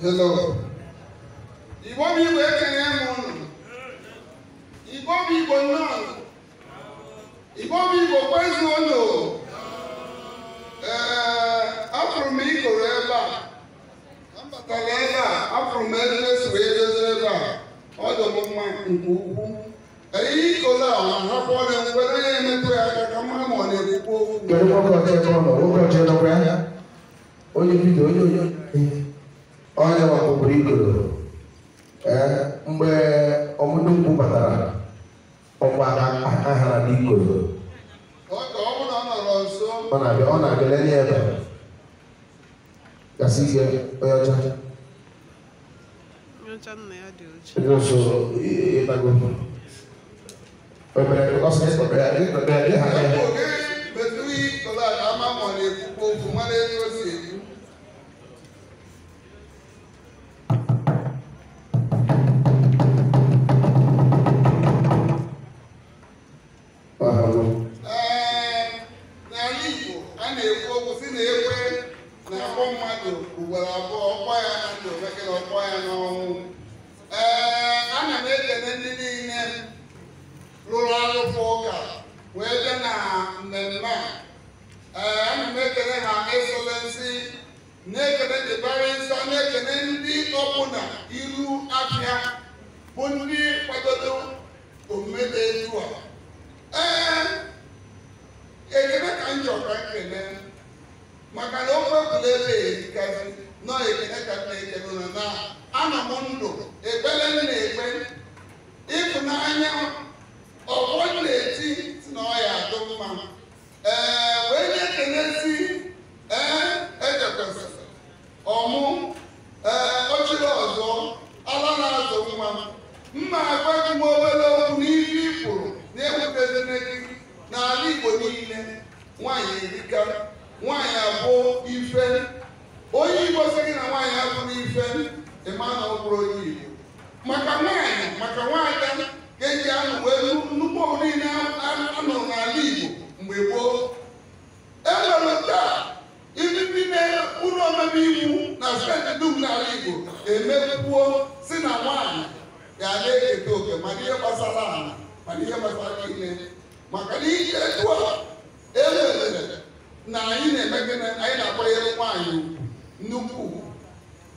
Hello. Igbo bụ Igbo ekele m ụnụ. Igbo bụ Igbo nnọọ. Igbo bụ Igbo kwezu ụnụ. Ee, afụrụ m ikoro ebe a. Ambatara ebe a, afụrụ m ebe esi wee dozie ebe a. Ọ dị m mma nke ukwuu. Eyi ikoro a na-ahapụ ọrịa mgbere na-emetụ ya aka ka mma ma onye ọkpụkpụrụ igoro eh mgbe ọmụnukwu batara ọkwa aka hara n'ikoro ọ na-abịa Ona be ona be leni gasị Kasi onye oya cha. Oya cha ịhaga ya bụ mmadụ ugboro abụọ ọkpọ ya na ndụ bekere ọkpọ ya n'ọnwụ ee ana m ekele ndị niile rụrụ arụpụ ụka wee bịa na mmemme a ee ana m ekele ha esolensi na-ekele dịbara nsọ na-ekele ndị ọbụla iru afịa bụ ndị kwadoro omume dị etu a ee ekele ka m chọrọ ka m maka na ụmụ egwuregwu erikazi nọ ekekatara ekebụna na ana m ndụ ekpere m na-ekpe ịtụnanya ọgwọ na-eti ife Emmanuel bụrụ onye Igbo maka nwaanyị maka nwaanyị ga-eji anụ wee nnukwu niile anọ n'ala Igbo mgbe gboo e nwere taa ndị ụlọ omebe iwu na steeti dum n'ala Igbo emebuo si na nwaanyị ga-ala eketa oke mana ihe gbasara ala mana ihe gbasara maka na ihe etu e na anyị na-emegide anyị na-akwanyere nwaanyị nnukwu ugwu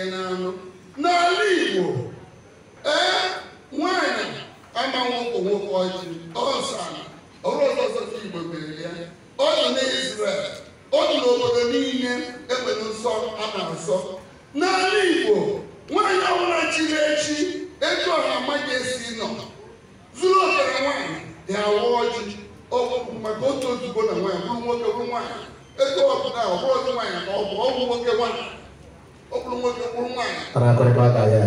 ihe n'anụ n'ala Igbo ee nwanyị ama nwoke nwoke ọjị ọsana ọrụ ọzọzọ Igbo mere ya ọ nọ na Izrel ọ nọ n'obodo niile enwere nsọ a na-asọ n'ala Igbo nwaanyị ọbụla chiri echi etu ọha amaghị esi nọ zuru ọbara nwaanyị dị awa ọjị ọgwụ maka otu ozugbo na nwaanyị bụrụ nwoke bụrụ nwaanyị ego ọbụla ọbụrụ nwaanyị na ọ bụ ọgwụ nwoke nwaanyị Anakɔrɔ b'a ka yɛ,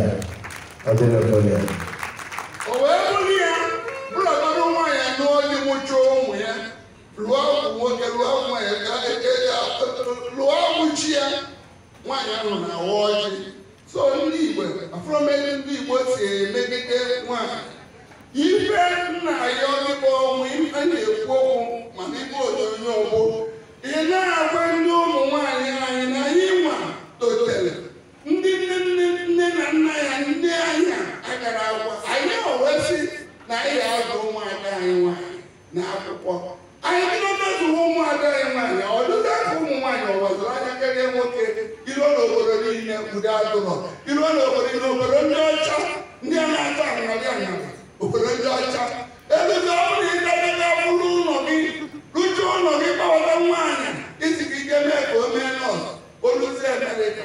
ɔdi n'o t'o yɛ. O wee wuli ya, bụlọdụ nwaanyị anọ dị mụchụ ụmụ ya, lụọ nwoke lụọ nwaanyị ka lụọ So ndị Igbo, afọmeli ndị Igbo si emegide nwaanyị. Ife nna ya ọ dịkwa ọnwụ, a na-ekwu okwu udo agụrọ iruo na obodo obodo ndị ọcha ndị a na-ata aaa obodo ndị ọcha ebido ọbụrụ ịdadebe bụrụ ụlọ gị rụjụ ụlọ gị gbawata nwaanyị iziga ike mee ka o mee nọọsụ oluzi emerịka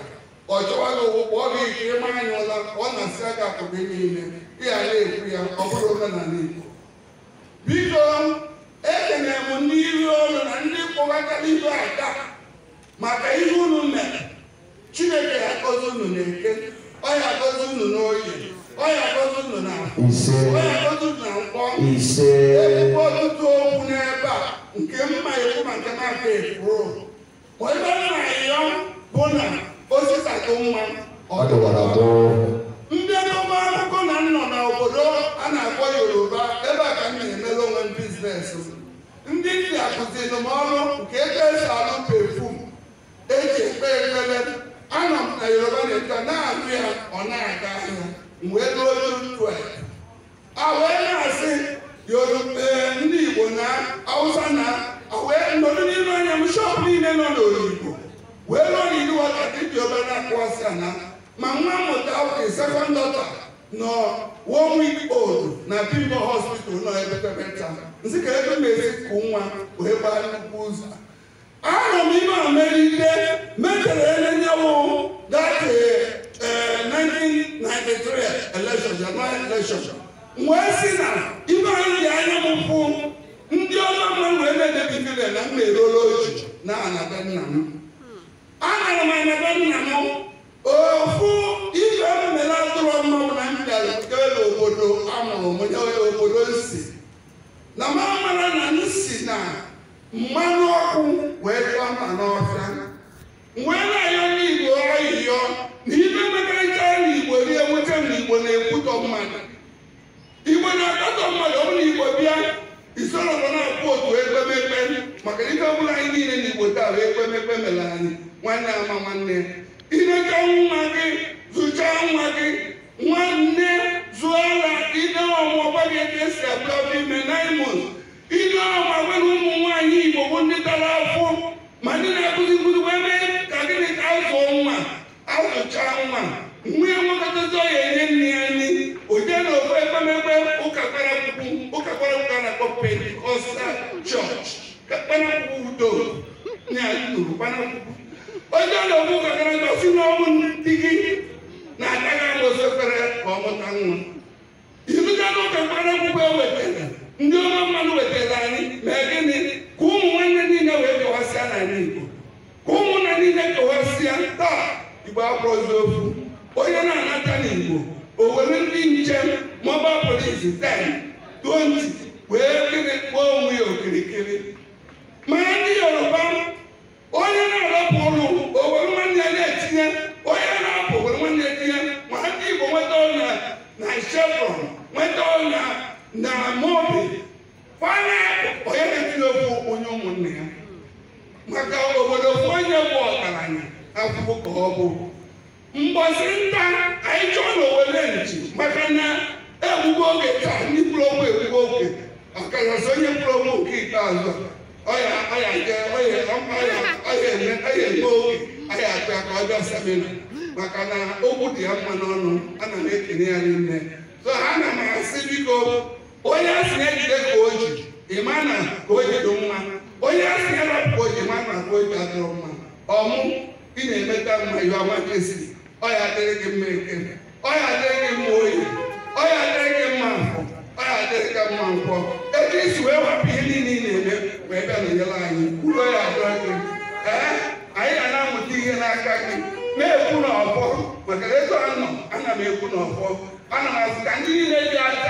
ọ chọwa gị ụwụ kpọọ gị ikiri mmanya ụla ọ na-asị aka akụrụ niile ịghara ekwu ya ọ bụrụ omenala Igbo biko ekenere m ndị iru olu na ndị kpọbatara ibe aka maka ihe ụlọ mere chineke ga-akọzi unu na-eke ọ ga unu n'oyi ọ ga unu na ise ọ unu na mkpọ ebe ọtụtụ okwu n'ebe a nke mma iwu maka maka ekwuru ebe na ya bụ na osisatụ mma ọ dụwara abụọ ndị ọba akụkọ na nọ n'obodo a na-akpọ yoruba ebe a ka m na-emere onwe m biznes ndị ndị akụziri m nke ebe esi alụ pefum eji ekpe ekpere anọ m na yoruba na-eto na-atụ ya ọ na-aga ahịa wee ruo olu a wee na-asị yoruba ndị igbo na hausa na wee nọdụ n'ime anya m shọp niile nọ n'oyibo wee ruo n'ihu ọta dị yoruba na-akụwasị akpụ ana ma nwa mmụta oke sekọnd dọta nọ one week old na bimbo hospital nọ ebe pepeta nsị ebe mere kụ nwa wee gbaa nnukwu ụzọ anọ m ime ike metere ele nye 1993 eh, election January si na ibe anyị anya m pụ ndị ọma mma wee na-edebigide na m na-erolu oji na anata nna m anara m anata nna m ofu ife atụrụ na m bịara kele obodo amụrụ m onye obodo nsi na m amara na nsi na mmanụ ọkụ wee tụọ mma n'ọfịa wee na-ayọ n'igbo ọyịyọ na ibe mekọrịta n'igbo rie nweta na igbo na-ekwutọ mmadụ igbo na-akatọ mmadụ ọ bụrụ igbo bịa isoro nọ na-akpụ otu ekpemekpe maka ihe ọ anyị niile n'igbo taa wee ekpemekpe mere anyị nwanne ama nwanne ileta nwa gị zụchaa nwa gị nwanne zụọ ala ide ọmụ ọgba gị esi abụọ ime nine months ide ọmụ agwa ụmụ anyị Igbo bụ ndị tara afọ ma ndị na-akụzi nkụzi wee ebe, ka gịnị ka azụọ nwa azụchaa nwa ọ nwekọtazi ọya enye nne ya nri oje na ofe ekpemekpe ụka kparakwụkwụ ụka a na-akpọ pentikọstal chọọchị ka udo na ndị gị na-agaghị ekpere ka ọ nwa n'ụka e wetara ndị ọma wetara anyị mee gịnị ka ụmụ niile wee kewasịa n'ala Igbo ka ụmụnna niile kewasịa taa Igbo akpọzi ofu onye na-anata n'Igbo o were ndị njem, mobile police 10 20 wee kiri kpọọ onwe ya okirikiri ma ndị Yoruba onye na-arapụ ụlọ o were nwanne na-etinye onye na-apụ were nwanne ya tinye ma ndị Igbo nweta ọnya na Chevron nweta ọnya na Mobi fana enyekwu onye ụmụnne ya maka obodo bụ onye bụ ọgaranya akwụkwọ ka ọ bụ mgbọzi nta anyị chọọ na owele nchi maka na egbugo oge taa ndị mkpụrụ okwu egbugo oge ọkachasị onye mkpụrụ okwu nke ikpeazụ ọya eme oge ahịa apịa ka ọ bịa semina maka na okwu dị ya mma n'ọnụ ana m ekene ya n'ime so ha ana m asị biko onye asị na-ejide ka o ji imana ka o ji mma onye asị ya rapụ imana ka o ji adịrọ mma ọmụ ị na-emeta mma iwe amakesiri ọ ya adịrị gị mma eke ọ ya adịrị gị mma oyi ọ ya adịrị gị mma nkwọ ọ ya adịrị gị mma nkwọ etu isi wee wapụ ihe niile ị na-eme wee bịa na nyere anyị kwuru ya adịrọ gị ee anyị na-amụta ihe n'aka gị na-ekwu na ọfọ maka ego anọ ana m ekwu na ọfọ ana m azụ ka ndị niile dị aka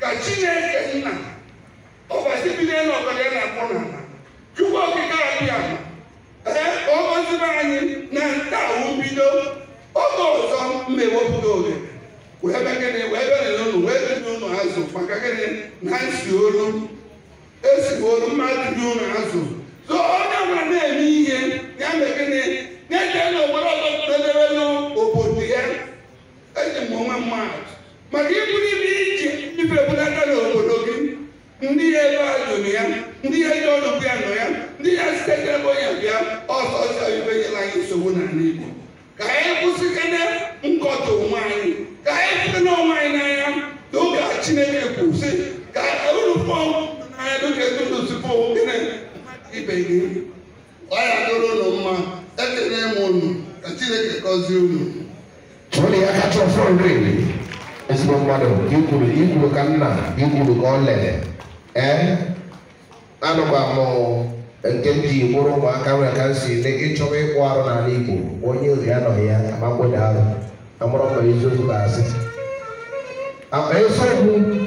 ka chineke nna ọkwasị bido na ọkọdọ ya na-akpọ n'ala chukwu okike abịa ee ọgọzibe anyị na nta bido oge ọzọ mmewepụta e oge wee begịnị wee wee ụlọ azụ maka gịnị na nsi olu esi olu mmadụ dị ụlọ azụ so onye na-eme ihe ya gịnị na-eje e na obodo ọzọ n'obodo ya eji m onwe mmadụ maka ịbụrụ ibe iji ebulata n'obodo gị ndị ya elu ajụrụ ya ndị ya ji ọnụbụ ya nọ ya ndị ya site n'ebe onye bịa ọsọ ọsọ ibe anyị nsogbu n'ala Igbo ka anyị kwụsịkana nkọta onwe anyị ka anyị site anyị n'anya n'oge a Chineke kwụsị ka uru fọm n'anya n'oge ndụ tupu gịnị ibe gị ọ ya dụrụ ụlọ mma ka Chineke gọzie ya kacha ọfọ nri ezigbo mmadụ ikwuru ikwuru ka nna ikwuru ka ọ lere ee anọ m amụ nke m ji bụrụ ụmụaka nwere ka m si dị ịchọba ịkpụ arụ n'ala Igbo onye ozi anọghị ya amagbodo arụ amụrụ m eziokwu ga-asị akpa eziokwu